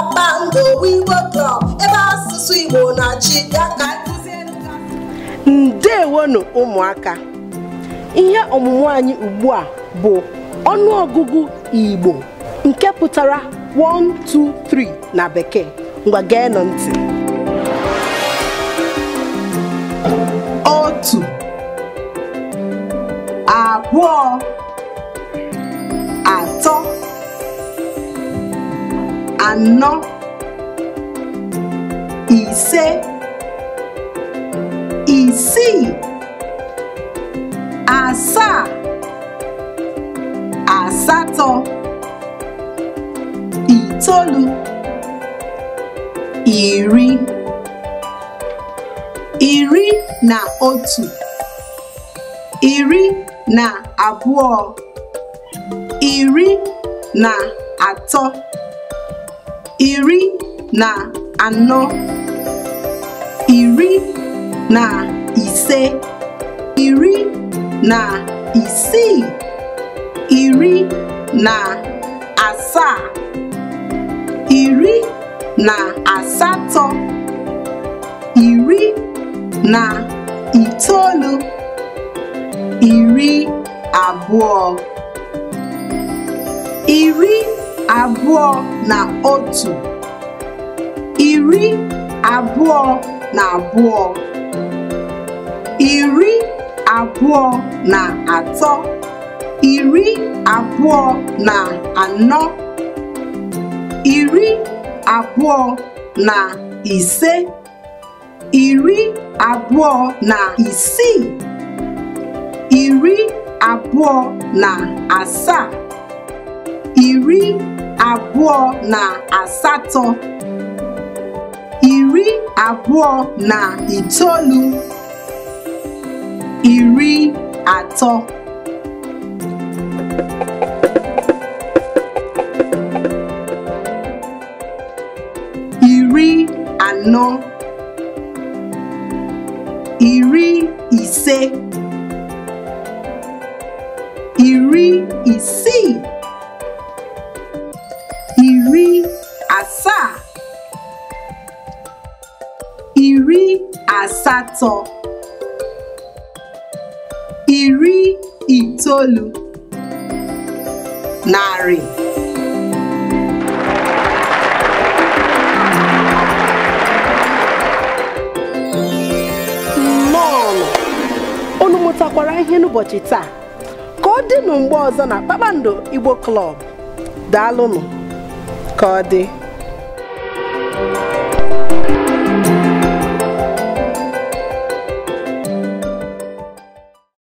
kpakpando Igbo na e ụmụaka ihe ọmụmụ anyị ugbu a bụ ọnụọgụgụ Igbo nke pụtara 123 na bekee ngwa gee nụ ntị otu abụọ anọ ise isii asaa asatọ itolu, iri iri na otu iri na abụọ iri na atọ iri na anọ iri na ise iri na isii iri na asaa iri na asatọ iri na itoolu iri abụọ iri abụọ na otu iri abụọ na abụọ iri abụọ na atọ iri abụọ na anọ iri abụọ na ise iri abụọ na isii iri abụọ na asaa iri abụọ na asatọ iri abụọ na itoolu iri atọ iri anọ iri ise iri isii asatọ iri itoolu narị nnọọ unu mụtakwara ihe n'ụbọchị taa ka ọ dịnụ mgbe ọzọ na kpakpando igbo klọb daalụnụ ka ọ dị